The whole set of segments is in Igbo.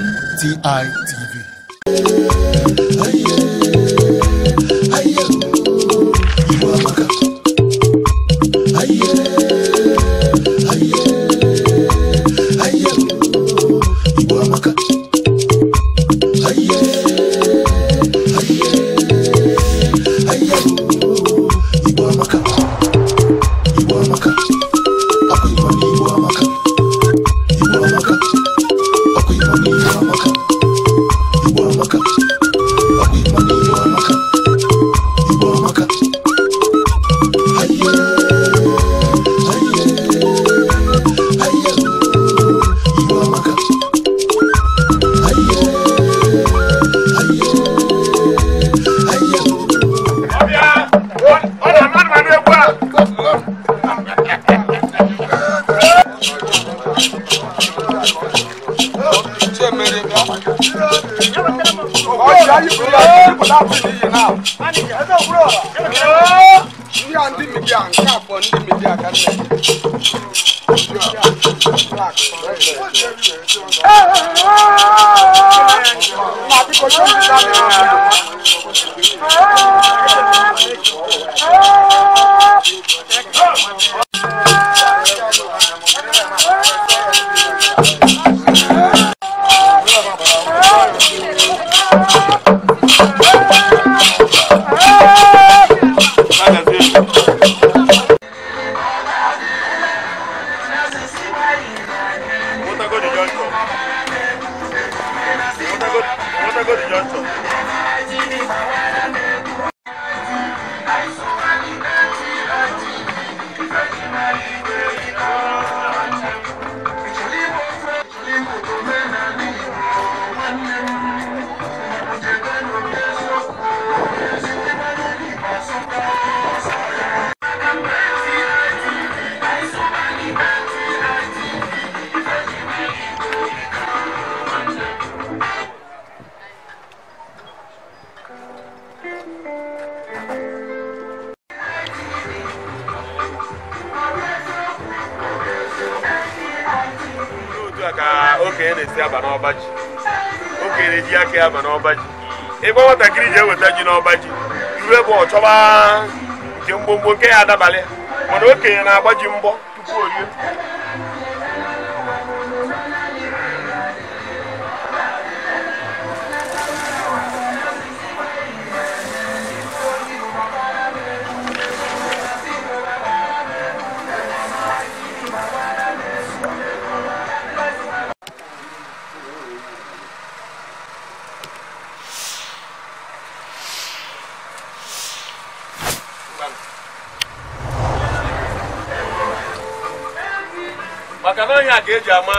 N T I T ọjà yìí fún yàrá ìdíkọ̀ láàbù nìyí náà. ndị a ndị midia nke abụọ ndị midia ka nne ee ma biko chọọ ka okenye na-esi n'ọba ji na-eji aka ya aba n'ọba ji ịgba nwatakịrị ji eweta ji n'ọba ji iwe bụ ọchọba nke mgbomgbo nke ya adabalị mana okenye na-agba ji mbọ tupu orie maka na ihe a ka eji ama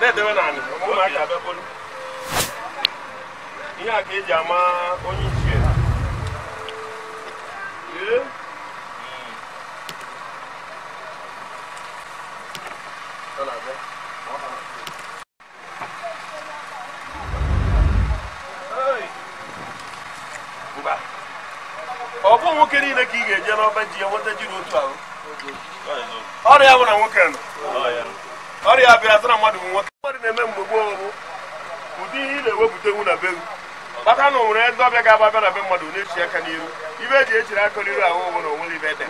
na-edewe n'ala ụmụaka bịakpolu ihe a ka eji ama onye ichie ọ bụ nwoke niile ka ị ga-eje n'ọba ji ya nweta ji n'otu ahụ ọrụ bụ na nwoke nọ ọrịa bịara mmadụ bụ nwoke mmadụ na-eme mgbe gboo bụ ụdị ihe ị na-ewepụtenwu na be bata na onwere eze ọbịa ga-aba abịa na be mmadụ na-echi aka n'iru ibe eji echiri aka n'iru ahụ ụgwụ na onwere ibe ede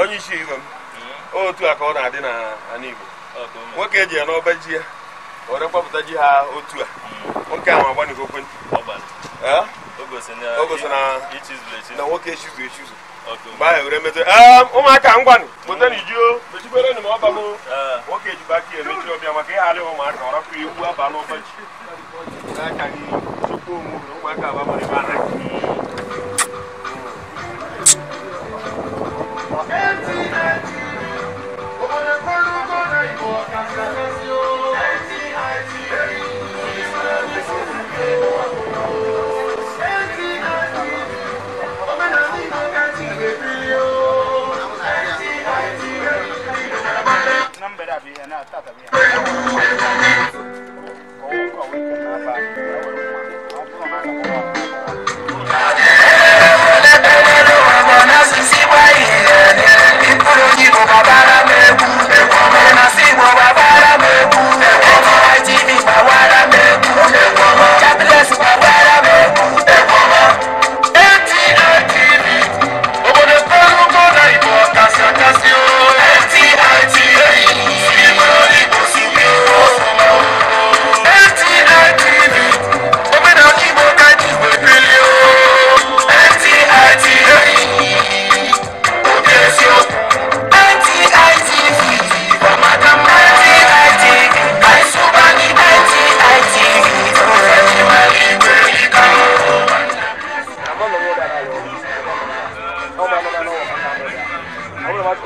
onye isi igwe m hmm? otu a ka ọ na-adị n'ala Igbo nwoke eji ya n'ọba ji ya ọrẹ kpọpụta ji ha otu a nwoke ahụ agba na okwe na nwoke echizu echizu mgbe ahụ were metụ ụmụaka ngwanụ pụta na ijuo mechikwere nụ ma ọ nwoke ejikwa aka emechi ọbịa maka ịghara ụmụaka ọrapụ ewu abalị ụbọchị n'aka gị chukwu onwe na ụmụaka abamara ebe anaghị Empty, empty. lọ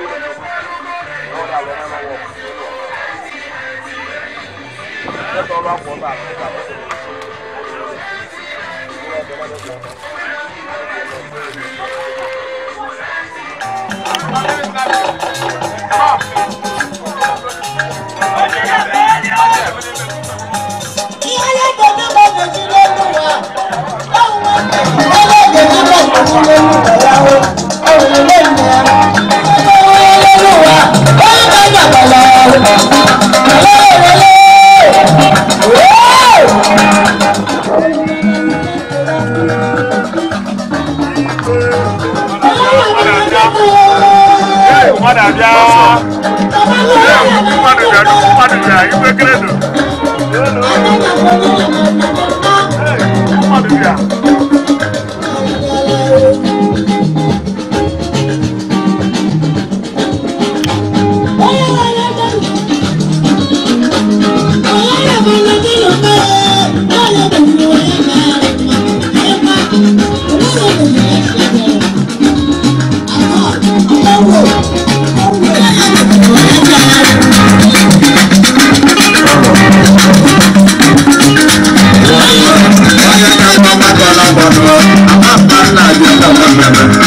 Thank you. mmadụ abịa mmadụ bịa nnukwu mmadụ bịa ibekere nụ mmadụ bịa Muhammad, Allah, Allah, Allah, Allah, Allah,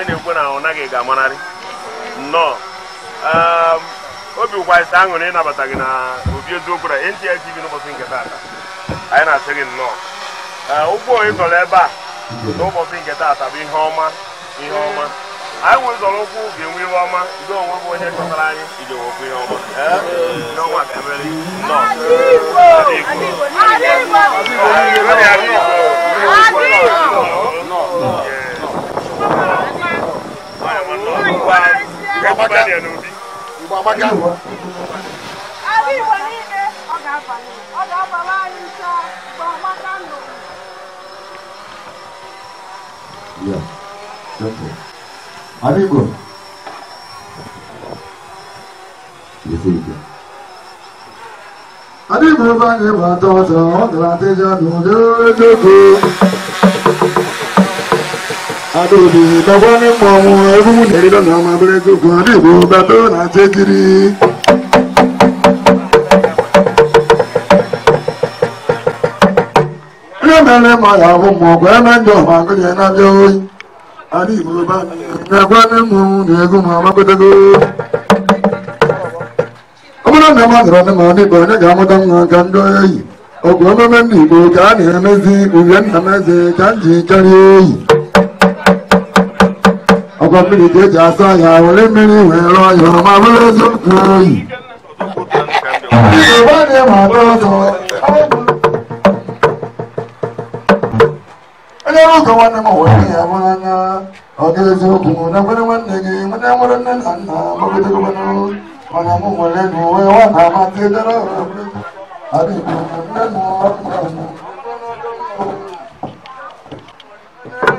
anyị na-ekwu na ọ naghị ga-amanarị nnọọ ehm, obi ụkwazite aṅụrị ịnabata gị na obi eziokwu na n'ụbọchị nke taata anyị na-asị gị nnọọ ụkwụ ehm, oyi tọrọ ebe a n'ụbọchị nke taata bụ ihe ọma ihe ọma anyị nwere zọrọ ụkwụ ga-enwe ihe ọma ndị onwe bụ onye chọtara anyị iji ihe ọma ihe ehm, ọma ga-emere nnọọ amaka igbo amaka ala igbo niile ọ ga-abanye ọ ga-abara anyị nso mgbe amaka ndụ ala igbo adịghị bụ ebe anyị bụ atọ ọzọ ọ gara adịja n'ụdị ojoko adòdì lọ́wọ́ nípa ọmọ ẹrú nìrí lọ́nà ọmọ abẹ́rẹ́ tó kàn ní ìwò bàbá ọ̀nà àti kiri. Ẹ̀mẹ́rẹ́ mọ ìyàwó mọ̀ ọ̀gbẹ́ mẹ́jọ ọmọ akọ́jẹ́ náà lé orí. A ní ìwò bá mi. Ìgbàgbọ́ ní mu ní egún mọ ọmọ pẹ́tẹ́gó. Ọmọ náà ní ọmọ àgbàrá ní mọ̀ ní ìbọn ní ìgbà mọ́tọ́ ń kan dọ́ yìí. Ọ̀gbọ́n mẹ́mẹ́ ní ìbò ká ní ẹ̀mẹ́sì, òwúrẹ́ ní ẹ̀mẹ́sì, ká ń jì kárí yìí ọkọ mi lè jẹjà sáyà wọlé mi ìwé ẹ̀rọ ìrọ̀rùn máa múlẹ̀ sókè yìí. ìṣèwọ́ ni màá bọ́ sọ. onye ọrụ ụzọ nwanne m wee ya mara na ọ ga-eziokwu na nwere nwanne gị nwere nwere nne na nna gbagidogbanụ mana mụ nwere na uwe nwa na amasị dara adịghị nne na ọrụ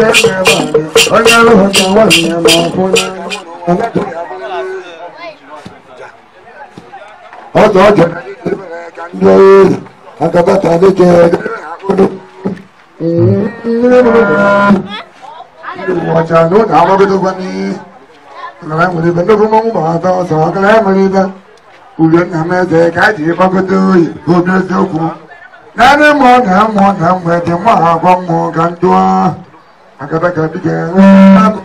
ọjọ́ ọjọ́ agabata ní jẹ ọdún ọjà lónìí àwọn ọmọdé tó gbá ní ìrọ̀lẹ́ ìmọ̀lẹ́ ìbẹ̀ lókun mọ́mú bàbá tó sọ ọkọlẹ́ ìmọ̀lẹ́ ìbẹ̀ ulẹ̀ ní àmẹ́sẹ̀ káàdì ìfọ́kọ́tò ìgbóbi ẹsẹ̀ òkú nánú mọ̀ nà mọ̀ nà mọ̀ ẹ̀dẹ̀ mọ̀ àgọ́ mọ̀ gàdúrà. akadaka bi kẹ ẹ